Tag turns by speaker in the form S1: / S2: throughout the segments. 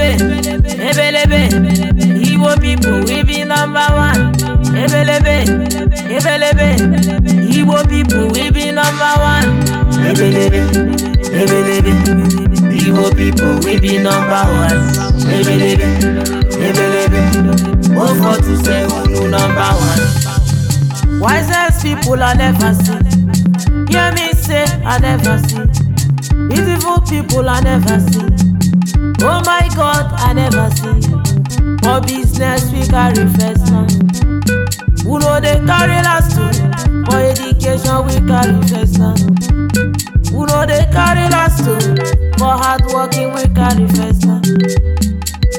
S1: ebelebe ebelebe Igbo pipo we be number one ebelebe ebelebe Igbo people we be number one ebelebe ebelebe Igbo people we be number one ebelebe ebelebe O four two seven number one. Wisest people I never see. Hear me say I never see. Beautiful people I never see. Oh my God, I never see. For business, we carry first son. Who know they carry last story? For education, we carry first son. Who know they carry last story? For hard working, we carry first son.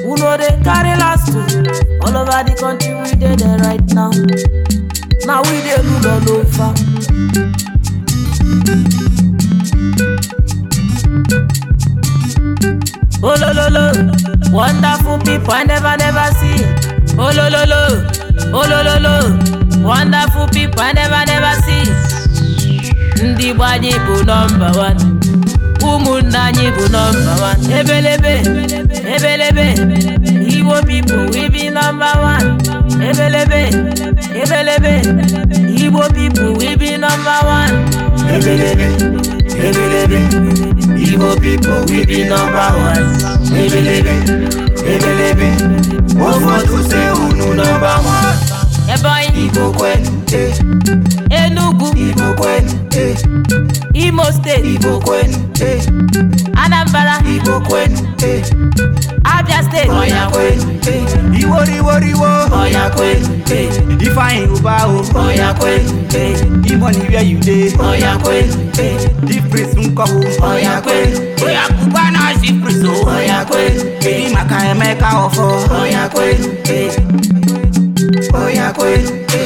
S1: Who know they carry last story? All over the country, we did it right now. Now we dey rule all over. Wonderful people I never never see. Oh lo lo lo, oh lo lo lo. Wonderful people I never never see. Ndị Igbo anyị bụ nọmba wan. Ụmụnna anyị bụ nọmba wan. Ebelebe, ebelebe. Igbo people we be number one. Ebelebe, ebelebe. Igbo people we be number one. Ebelebe. ebelebe igbo pipo we be number one ebelebe ebelebe ụfọdụ se unu number one igbo e. enugu igbo e. imo steeti igbo e. anambra igbo e. fine over o. Oya kwente. The ni where you dey. Oya kwente. The nkọ o. Oya kwente. Oya kuba na si praise oh. Oya Eyi maka Emeka ọfọ. Oya kwente. Oya kwe.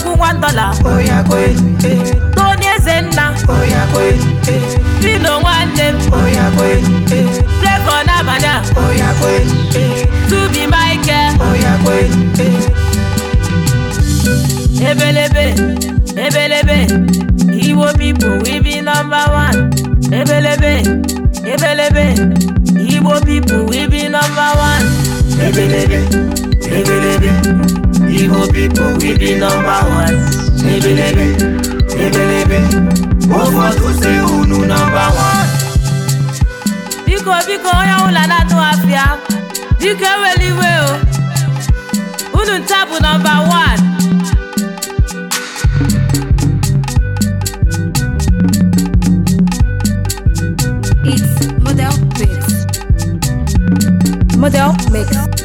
S1: egwu nwa dọla Tony Ezenna Dino nwanne m Flavour n'abalị a Tubi Michael Ebelebe Ebelebe Iwo people Ibi nọmba 1 Ebelebe Ebelebe Igbo people, we be number one. Ebelebe, ebelebe, ụfọdụ si unu number one. Biko biko onye ọbụla na-atụ afịa, biko eweli iwe o. Unu nta bụ nọmba one. It's model mix. Model mix.